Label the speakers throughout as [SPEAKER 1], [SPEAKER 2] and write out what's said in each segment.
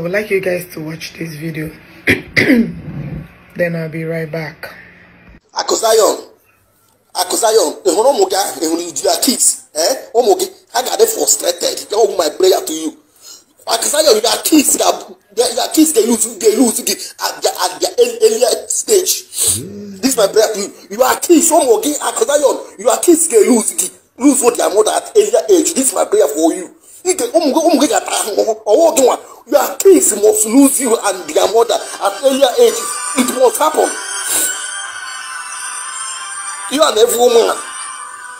[SPEAKER 1] would like you guys to watch this video. then I'll
[SPEAKER 2] be right back. Akosayo, Akosayo, ehun omo ga, ehun you are kids, eh? Omo oh, I got them frustrated. That was my prayer to you. Akosayo, you are kids that your kids dey lose dey lose the at their at their earlier stage. This my prayer to you. You are kids, omo oh, ga, you are kids dey lose the lose what their mother at earlier age. This my prayer for you or one. Your kids must lose you and their mother at earlier ages. It must happen. You and every woman,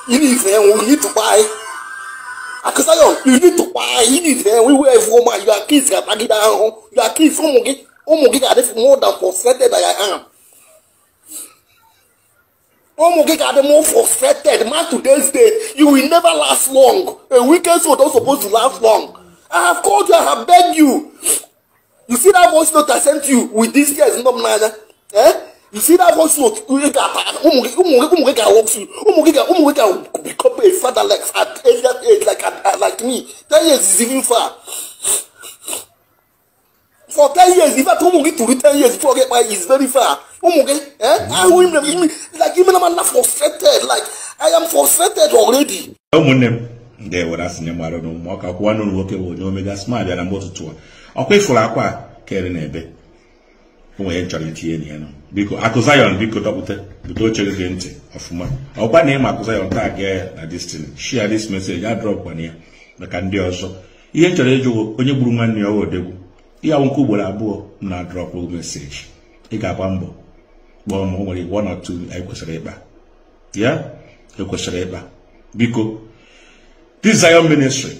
[SPEAKER 2] you need them, we need to buy. Akusayon. you need to buy, you need them, we were every woman, your kids are tagging down, your kids, umugi, umugi are oh, oh, more than frustrated than I am. Omo oh, Giga, the more frustrated man today's day, you will never last long. A weekend so don't supposed to last long. I have called you, I have begged you. You see that voice note I sent you with this girl's number, eh? You see that voice note? Umuge can walk through. Umuge can, Umuge can become a father like at age, that age, like uh, like me. Ten years is even far. For ten years, if I told Umuge to read ten years before I get married, it's very far. Umuge, eh? I will, like even I'm not frustrated. Like I am frustrated
[SPEAKER 3] already. ga-ewere asị nye na ụmụ ọka kwụwa n'ụlọ nwoke bụ onye omega sma bịara mgbe ụtụtụ a ọkwa ifuru akwa a kere na ebe onwe ya chọrọ itinye na ya nọ biko akụ biko dọpụta bute oche gị ntị ọfụma ọkwa na ịma akụ Zion taa gee ya na destin shia this message ya drọpkwana ya maka ndị ọzọ ihe chọrọ ịjụ onye gburu nwanne ya ọwa odegwu ihe awụ ugboro abụọ na drọpụ meseji ị ga-agba mbọ kpọọ ma o nwere one or two anyị kwesịrị ịkpa ya ekwesịrị ịkpa biko this Zion ministry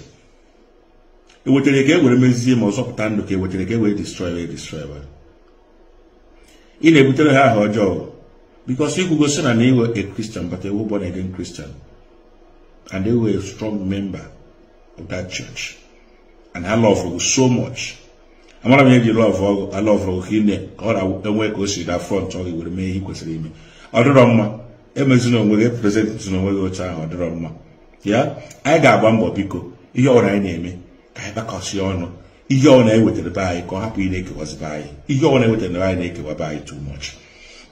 [SPEAKER 3] ewetara ka e were mezie ma ọzọpụta ndụ ka ewetara ka e were destroy destroy ị na-ebutere ha aha ọjọọ bikos ikwugo si na na iwe a Christian but ewu born again Christian and they were a strong member of that church and I love you so much amara m eji lọv ọgụ alọvụrụ ka ine ka ọ na-enwe ka o si na front ọ were mee ihe kwesịrị ime ọ dịrọ mma na onwe gị e na onwe gị oche ahụ ọ dịrọ mma ya anyị ga-agba mbọ biko ihe ọbụla anyị na-eme ka anyị gbakọsie ọnụ ihe ọbụla anyị wetara be anyị ka ọ hapụ ị na-ekewazibe anyị ihe ọbụla anyị wetara anyị na-ekewaba anyị too much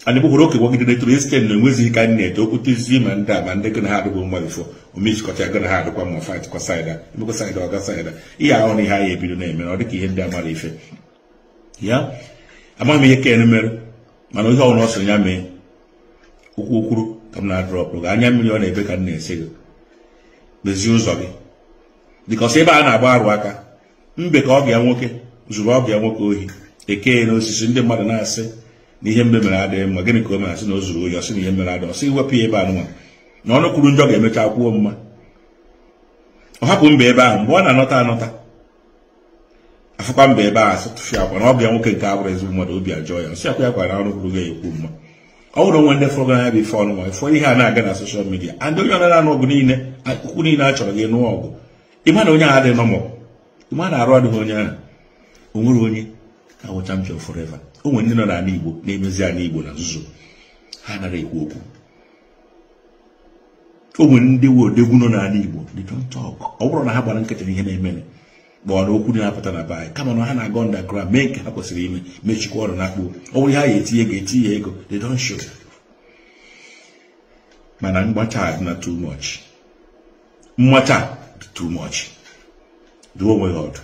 [SPEAKER 3] anyị bụkwara okewagide netoro isten na enwezighị ka anyị na-ete okwutezie ma ndị a ma ndị gị na ha adịgbo mma bifo omechikọta ya gị na ha adịkwa mma fight kọsaida emekọ saida ọga saida ihe ahụ na ihe anyị ebido na-eme na ọ dịka ihe ndị amara ife ya amaghị m ihe ken mere mana ihe ọbụla ọ sịrị ya mee okwu okwuru ka m na-adrọpụ anya mmiri ọ na-ebe ka m na-ese gị mezie ụzọ gị bikọsị ebe a na-agba arụ aka mbe ka ọbịa nwoke zuru ọbịa nwoke ohi eke na osisi ndị mmadụ na-asị na ihe mbe mere adịghị mma gịnị ka o mere asị na o zuru ohi ọsị na ihe mere adịghị ọsị iwepụ ya ebe a nwa na ọnụ kwuru njọ ga-emecha kwuo mma ọ hapụ mba ebe ahụ mgbe ọ na-anọta anọta afụkwa mbe ebe ahụ asị tụfịa akwa na ọbịa nwoke nke abụrụ ezigbo mmadụ obi ajọ ya nsị akwa ya kwara na ọnụ kwuru ga-ekwu mma ọ nwere onwe ndị fọrọ bụ bifo ọnụnwa ifọ ihe a na-aga na soshal midia and onye ọnara na ọgụ niile ukwu niile a chọrọ gị nụọ ọgụ ịma na onye ahụ adịghị nọmọ ịma na arụ adịghị onye ahụ o nwere onye ka wụ champion forever o nwere ndị nọ n'ala igbo na-emezi ala igbo na nzuzo ha nara ekwu okwu o nwere ndị odegwu nọ n'ala igbo they don't talk ọ bụrụ na ha gbara nkịtị ihe na-emere gbọọ na okwu dị na-apụta na be anyị kama na ha na-aga underground mee nke ha kwesịrị ime mechikwa ọrụ na-akpụ ọ bụrụ ha ya etinye ego etinye ego they don't show mana mgbacha dị na too much mmacha dị too much duo onwe ha ọdụ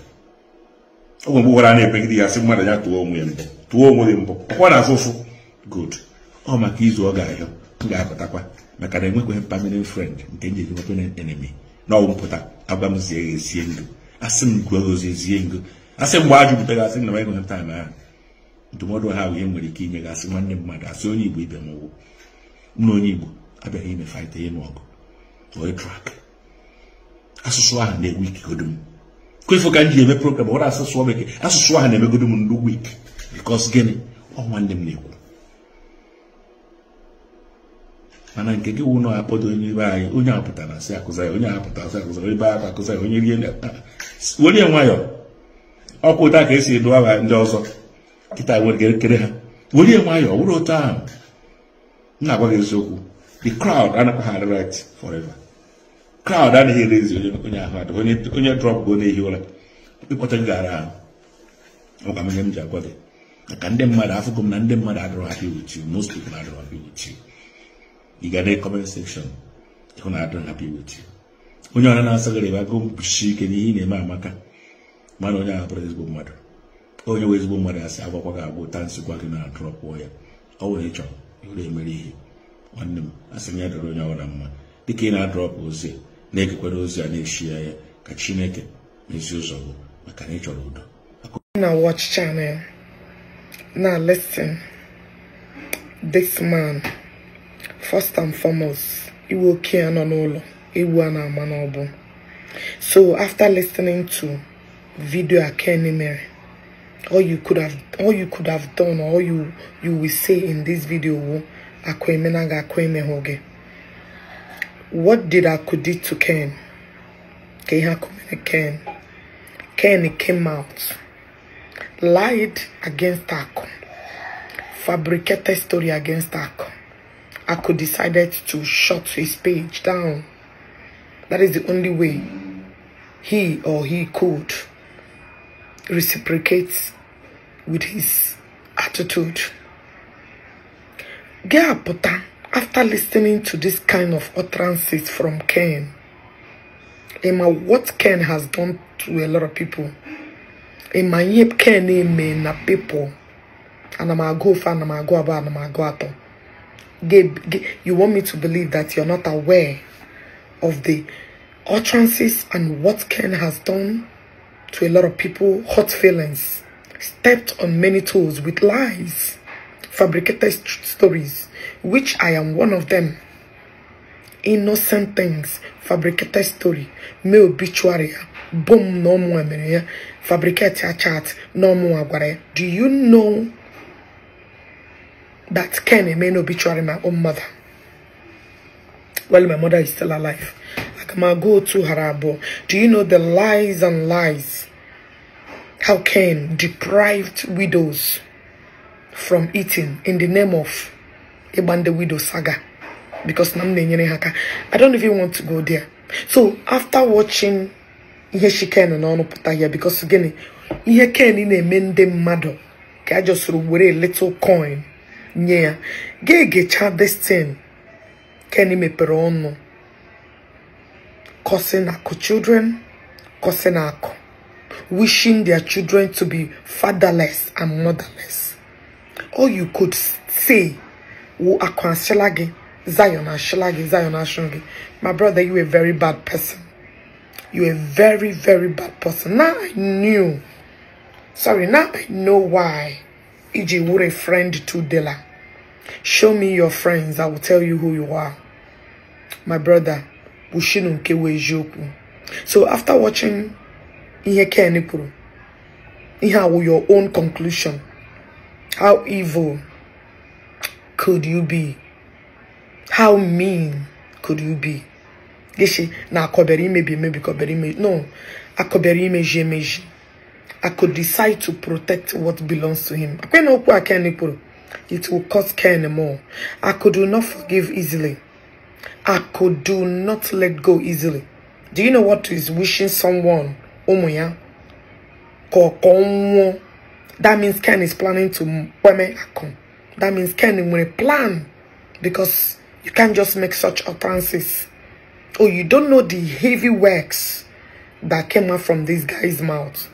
[SPEAKER 3] oge mgbe gwara na-epegide ya sị mmadụ ya tụọ onwe ya mbụ tụọ onwe ya mbụ ọkwa na afụfụ good ọ maka izu ọ ga-ahịọ m ga-apụtakwa maka na enwekweghị permanent friend nke njiri permanent enemy na ọgwụ mpụta agwa m esie ndụ asị m gụọ ozi ezie ngo asị mgbe a jụpụta gị asị na baịbụl taa na ndụmọdụ ha wee nwere ike inye gị asị nwanne mmadụ asị onye igbo ibe m ụgwụ nna onye igbo abịaghị ime faịta ịnụ ọgụ oe trak asụsụ ahụ na-egbu ikegodo m kwefu ka m ji eme program ọrụ asụsụ bekee asụsụ ahụ na-emegodo m ndụ wik bikos gịnị ọ nwanne m na-ekwu mana nke gị wụ na akpọdo onye ibe anyị onye apụtara si akụzara onye apụtara asị akụzara ebe a akụzara onye rie welie nwayọ ọkụ ụta ka esi edu aha ndị ọzọ kịta e kere ha welie nwayọ wụrụ otu ahụ m na-agwa gị eziokwu the crowd anakwa ha right forever crowd anaghị erezi onye ahụ adịghị onye drọp go na-ehi ụra ịkpọta gara ahụ ọgwa m ihe m ji agwa gị maka ndị mmadụ afụgo m na ndị mmadụ adịrọ happy with you most people adịrọ happy with you ị ga na comment section ịhụ na adịrọ happy with onye ọha na-asaghara ebe agụụ mkpuchi ike n'ihe na-eme amaka mana onye ahụ bụrụ ezigbo mmadụ onye nwe ezigbo mmadụ sị agwakwa gị agwụ taa nsịkwa gị na-adụrọ pụọ ya ọ nwere ịchọ ịhụrụ emere ihe nwanne m asị m ya dọrọ onye ọbụla mma dịka ị na-adọrọpụ ozi na-egekwara ozi a na echiya ya ka chineke ezi ụzọ gị maka na ị chọrọ udo
[SPEAKER 1] na watch channel na listen this man first and foremost iwe oke ya nọ n'ụlọ So after listening to video Akeni Mary, all you could have all you could have done or all you you will say in this video what did do to Ken? Ken Ken came out, lied against Akon, fabricated story against Akon. Akon decided to shut his page down. That is the only way he or he could reciprocate with his attitude. Geapota, after listening to this kind of utterances from Ken, Emma, what Ken has done to a lot of people, Emma, yep, Ken, Emma, na people, and I'm a go for, and I'm a go about, and I'm a go at You want me to believe that you're not aware of the utterances and what Ken has done to a lot of people, hot feelings, stepped on many toes with lies, fabricated stories, which I am one of them. Innocent things, fabricated story, me obituary, boom, no more, fabricated chat, no more. Do you know that Ken may be obituary my own mother? while my mother is still alive. go to Harabo. Do you know the lies and lies? How can deprived widows from eating in the name of Ebande Widow Saga? Because I don't even want to go there. So after watching she ihe shikenu na ọnụpụta here because gịnị ihe ken na-eme ndị I just a with a little coin get get ga this thing. Kenny meperono, causing our children, causing our wishing their children to be fatherless and motherless. All you could say, wo akwa shilagi, Zion shilagi, Zion shilagi. My brother, you a very bad person. You a very, very bad person. Now I knew. Sorry, now I know why. EJ were a friend to Dela. Show me your friends. I will tell you who you are. my brother Bushino Nkewu Ejiokwu. So after watching Ihe Kenipuru, Ihe with your own conclusion, how evil could you be? How mean could you be? Gishi, na akobere imebi maybe akobere me. No, me, imeji me. I could decide to protect what belongs to him. It will cost Ken more. I could not forgive easily. I could do not let go easily. Do you know what is wishing someone? Omoya. That means Ken is planning to That means Ken will plan because you can't just make such utterances. Oh, you don't know the heavy works that came out from this guy's mouth.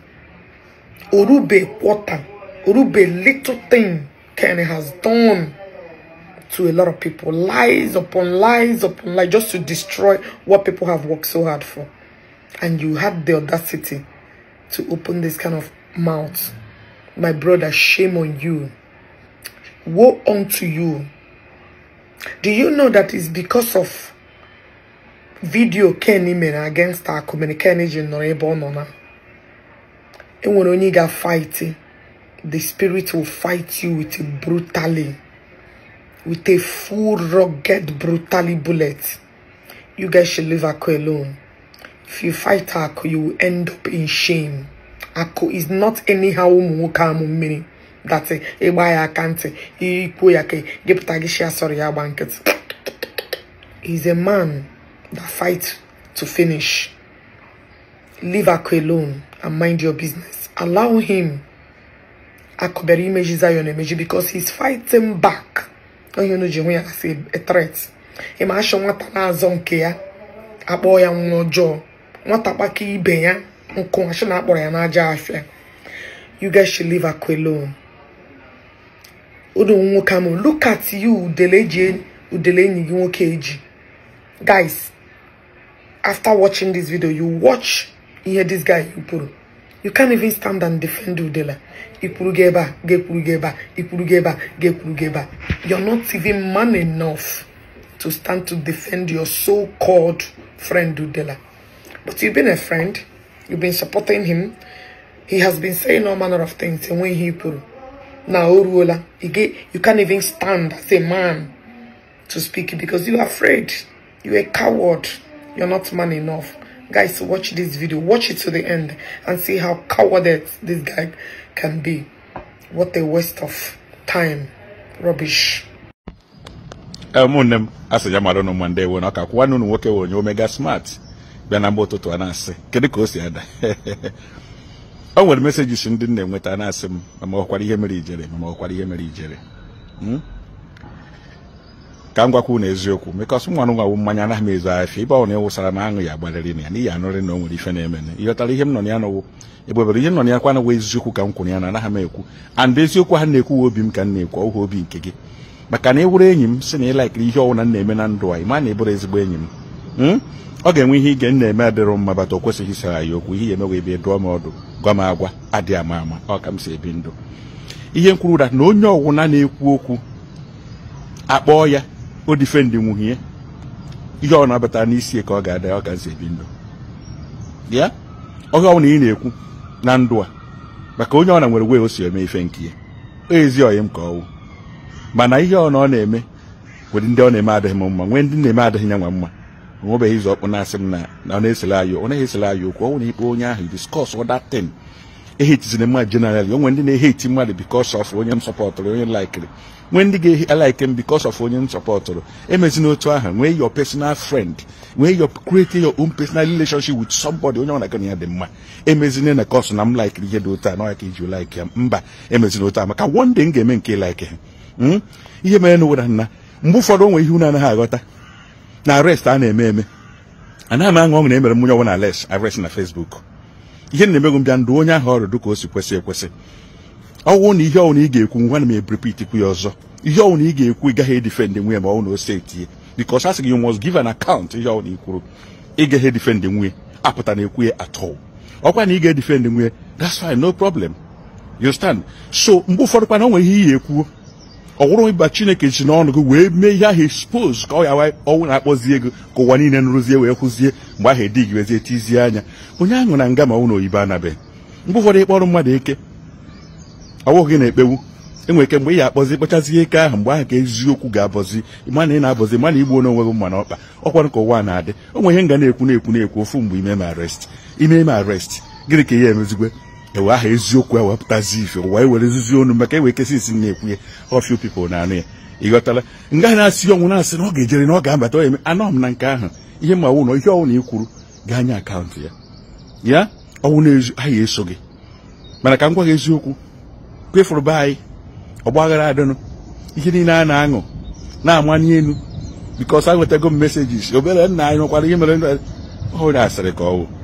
[SPEAKER 1] Orube water, Orube little thing Ken has done to a lot of people. Lies upon lies upon lies just to destroy what people have worked so hard for. And you had the audacity to open this kind of mouth. My brother, shame on you. Woe unto you. Do you know that it's because of video Kenny men against our community nor ebe ọ nọ na enwere the spirit will fight you with it brutally with a full, rugged, brutally bullet. You guys should leave akko alone. If you fight akko you will end up in shame. akko is not anyhow umukamu meaning. That's it. Eba sorry He's a man that fights to finish. Leave akko alone and mind your business. Allow him. Akoberi images are your image because he's fighting back. onye na ji hụ ya e ịma achọ nwata na-azọ nke ya akpọ ya nwa ọjọọ nwata kpaka ibe ya nkụ achọ na akpọrọ ya n'aja afịa you get should live Akwa alone unu nwoke amụ look at you udele e e, enyi gị nwoke eji guys after watching this video you watch ihe this guy kwuru You can't even stand and defend Udela. Ipurugeba, Gepurugeba, Ipurugeba, Gepurugeba. You're not even man enough to stand to defend your so-called friend Udela. But you've been a friend. You've been supporting him. He has been saying all manner of things and when he put. Now, Uruola, you can't even stand as a man to speak because you're afraid. You're a coward. You're not man enough guys watch this video watch it to the end and see how cowarded this guy can be what a waste of time rubbish
[SPEAKER 3] ụmụnne eh, m asị ya mara ụnụ mande nwe nwoke nwe omega smart bịa na mgba ụtụtụ a na si ada enweta na ma ihe ma ka m gwakwu na eziokwu mekọsụ nwa nwa mmanya anaghị m ezu afịa ibe ọ na sara m aṅụ ya agbalịrị na ya n'ihi anụrị na o nwere ife na-eme ịghọtara ihe m nọ ya nọwụ egbebere ihe m nọ ya kwa anaghị eziokwu hmm? ka m kwuru ya na anaghị m ekwu and eziokwu ha na-ekwu obi m ka m na-ekwu ọhụ obi nke gị maka na ị wụrụ enyi m si na ị ịlaikiri ihe ọwụna m na-eme na ndụ anyị ma na ịbụrụ ezigbo enyi m ọ ga-enwe ihe ige na-eme adịrọ mma bata o kwesịghị isara ya okwu ihe ya emewe ebe dụọ m ọdụ gwa m agwa adịghị ama ama ọ ka m si ebi ndụ ihe m kwuru na onye ọwụna na-ekwu okwu akpọọ ya bụ difendi nwunye ihe ọ na-abata n'isi ka ọ ga-ada ọ gazi ebi ndụ ya ọhịa ọnwụ na ị na-ekwu na ndụ a maka onye ọ na nwere wee o si eme ife nke ya ezi ọyị m ka ọwụ mana ihe ọ na ọ na-eme nwere ndị ọ na-eme adịghị m mma nwee ndị na-eme adịghị ya nwa mma nwebeghị izu ọkpụ na-asị m na ọ na-esele anyị ọ naghị esele anyị okwu ọnwụ na ikpe onye ahụ diskọs ọdatin ehitizina mmadụ generally onwe ndị na-eheti mmadụ because of onye m sọpọtụrụ onye laikiri nwee ndị ga-alike m because of onye m sọpọtụrụ emezina otu aha nwee your personal friend nwee your kreti your own personal relationship with somebody onye ọna gana ya dị mma emezina na kọsụ na m laikiri ihe dị otu a n'ọya ka iji like ya mba emezina otu a maka one day m ga-eme nke like hmm? ha ihe mere na ụwara nna mgbe ụfọdụ onwe ihe unu anaghị aghọta na arrest a na-eme eme anaghị m aṅụ ọṅụ na emere m onye na arrest arrest na Facebook ihe na-emegụ m bịa ndụ onye ahụ ọrụ dịka o si kwesị ekwesị ọwụ na ihe ọwụ na ị ga-ekwu nwa na m ebrepitikwu ya ọzọ ihe ọwụ na ị ga-ekwu ị gaghị edifendị nwunye ma ọwụ na o setie because asị gị you must give an account ihe ọwụ na ị kwuru ị gaghị edifendị nwunye apụta na ekwu ya atọ ọkwa na ị ga-edifendị nwunye that's fine no problem you so mgbe ụfọdụ kwana onwe o ihe ị ya ekwuo ọ ịba chineke ji n'ọnụ gị wee mee ihe ahụ expose ka ọ ya ọnwụ na-akpọzie ego ka ụwa niile nrụzie wee kwụzie mgbe ahụ edi gị wezie tizie anya onye ahụ na nga ma ụlọ oyibo anabeghị mgbe ụfọdụ ịkpọrọ mmadụ eke ọ bụghị na-ekpewu enwere ike mgbe ị ga-akpọzi kpachazie ike ahụ mgbe ahụ ka eziokwu ga-abọzi mana ị na-abọzi mana igbu onye onwe gị mma n'ọkpa ọkwara ka ụwa na-adị o nwere ihe nga na-ekwu na-ekwu na-ekwu ofu mgbe ime m arest ime m arrest gịnị ka ihe emezigwe ewe aha eziokwu a wepụtazi ife ụwa ewerezizi onu maka ewekesị isi na-ekwu ya ọfịa people na-anụ ya ịghọtala nga na-asị ọnwụ na-asị na ọ ga-ejere na ọ ga-abata ọ eme anọ m na nke ahụ ihe ma ọwụ na ihe ọwụ na ikwuru ga-anya akaụntụ ya ya ọwụ na aha eso gị mana ka m gwa gị eziokwu kwefụrụ be anyị ọgbaghara adịnụ ihe niile a na-aṅụ na-ama n'elu bikọs a nwetago m mesejis obere nna anyị nọkwara ihe mere ọ na-asịrị ka ọ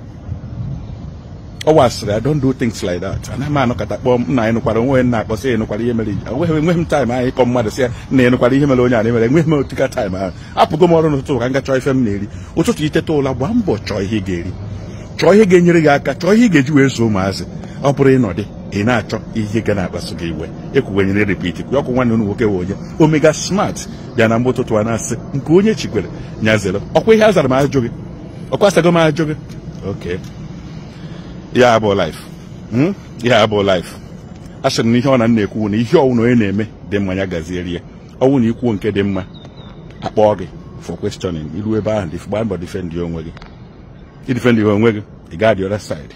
[SPEAKER 3] ọ wasịrị I don't do things like that anaghị m anọkọta kpọọ m na ịnụkwara onwe na akpọsị ịnụkwara ihe mere enweghị enweghị m taịm ahụ ịkọ mmadụ sị ya na ịnụkwara ihe mere onye a na-emere enweghị m otika taịm ahụ apụgo m ọrụ n'ụtụtụ ka m gachọọ ife m na-eri ụtụtụ iteta ụla gbaa mbọ chọọ ihe ga-eri chọọ ihe ga-enyere gị aka chọọ ihe ị ga-eji wee so ụmụazị ọ bụrụ ịnọdị ị na-achọ ihe ga na-akpasu gị iwe ekwuwenyere repit kwụ ọkwụ nwanne unu nwoke wee onye omega smart bịa na mgbe ụtụtụ a na-asị nke onye chikwere nyazere ọkwa ihe a zara m ajụ gị ọkwa asago m ajụ gị oke ya bụ life ya hmm? bụ life a sịrị na ihe ọ na nna ekwu na ihe ọwụ na onye na-eme dị mma ya gazierie ọwụ na ikwuo nke dị mma akpọọ gị for questioning iru ebe ahụ gbaa mbọ defend onwe gị idefend ihe onwe gị ị gaa the other side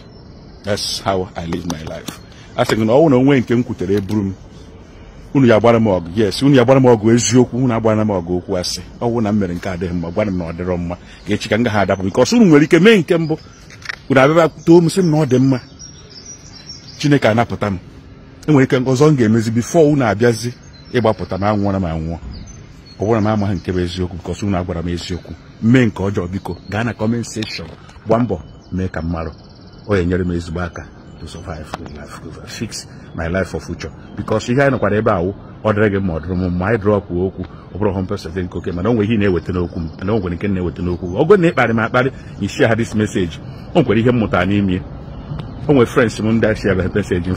[SPEAKER 3] that's how i live my life a sịrị na ọwụ na onwe nke m kwutere eburu m unu ya agbara m ọgụ yes unu ya agbara m ọgụ eziokwu unu agbara m ọgụ okwu asị ọwụ na m mere nke adịghị mma gwara m na ọ dịrọ mma ga-echi ka m gaghị adapụ bikọs unu nwere ike mee nke mbụ kwuru abịa too m sị m na ọ dị mma chineke anapụta m enwere ike ọzọ m ga-emezi bifo unu abịazi ịgbapụta m na m anwụọ ọ bụrụ na m amaghị nke bụ eziokwu bikọs unu agwara m eziokwu mee nke ọjọọ biko gaa na kọment seshọn gba mbọ mee ka m marụ ọ nyere enyere m ezigbo aka to survive fix my life for future bikọs ihe anyị nọkwara ebe awụ ọ dịrị gị ma ọ dịrị m mma anyị drọpụ okwu ọ bụrụ hụ mpesentị nke oke mana o ihe na-eweta n'okwu m mana nke na n'okwu ọ bụrụ na ịkparị m akparị isi ha dis meseji o nwere ihe mmụta n'ime o nwere mụ m ndị ashia bịa meseji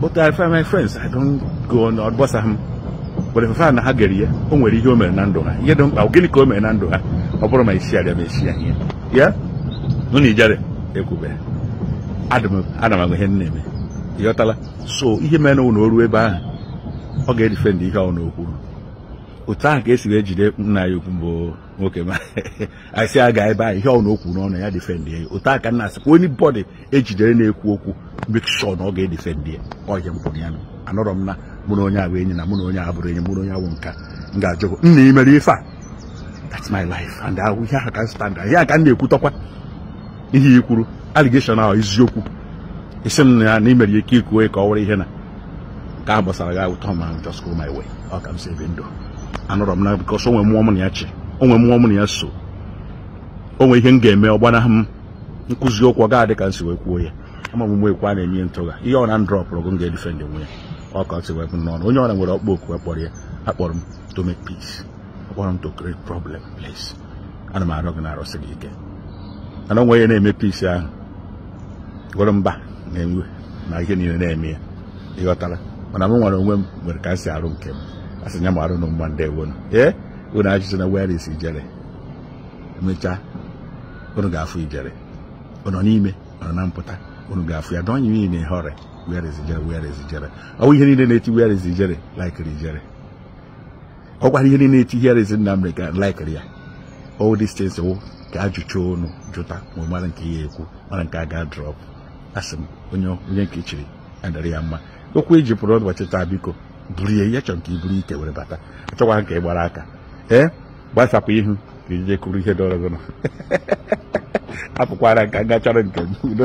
[SPEAKER 3] but I find my friends I don't go on ọgbasa m but ife na ha gere ya o nwere ihe o mere na ndụ ha ihe dị mkpa gịnị ka o mere na ndụ ha ọ bụrụ ma ishia bịa ma ya ihe ya nụ na ijere ekwube ana m agwa ihe m na-eme ịghọtala so ihe mere na o ruo ebe ahụ ọ ga-edifendị ihe ọ okwuru otu ahụ ka esi wee jide nna ya ukwu mbụ nwoke ma asị aga ebe ahụ ihe ọ na okwu n'ọnụ ya defendị ya otu aka nna asịkwa onye bọdị ejidere na-ekwu okwu mekshọ na ọ ga-edefendị ya ọhịa mpụrụ ya anọrọ m na mụ na onye abụ enyi na mụ na onye abụrụ enyi mụ na onye awụ nka m ga-ajụgo nna ị mere ife a that's my life and ahụ ihe ahụ ka stand ihe aka m na-ekwutọkwa ihe ikwuru aligeshọn ahụ eziokwu isi m na na imere ike ikwu ka ọ were ihe na nke a gbasara gị awụtọ ma just go my way ọ ka m si ndụ anọrọ m na bikos onwe mmụọ m na ya chi onwe mmụọ m na ya so onwe ihe m ga-eme ọgbanaghị m nkụzi okwu ọ ga-adị ka m si wee kwuo ya ama m mgbe ekwe a na-enye ntụgha ihe ọna na ndrọpụrụ gụ m ga-edife ndị nwe ya ọ ka si wee n'ọnụ onye ọna nwere ọkpọ oku akpọrọ ya akpọrọ m to make peace akpọrọ m to create problem place ana m arịọ gị na arụsị gị ike ana onwe ya na-eme peace ahụ gwere mba na-enwe na ihe niile na-eme ya ịghọtara mana m nwere onwe m nwere ka m si arụ nke m a sị nya mara unu mma ndị ewonu ee unu ajụjụ na where is ijere emechaa unu n'ime na mpụta unu ga-afụ ya dọnye iyi na ihọrị where is ijere where ihe niile na-eti where is ijere laikiri ijere ihe na here is ya all these things wụ ka ajụcha unu jụta ma nke ya ekwu mara nke a ga asị onye nke adara ya mma okwu eji pụrụ ụbọchị taa biko buru ihe ihe chọrọ nke i buru ike were bata achọkwa ka ị e gbara aka ee gbasapụ ihu ka ije kụrụ ihe dọrọ gị apụkwara nka nga chọrọ nke m udo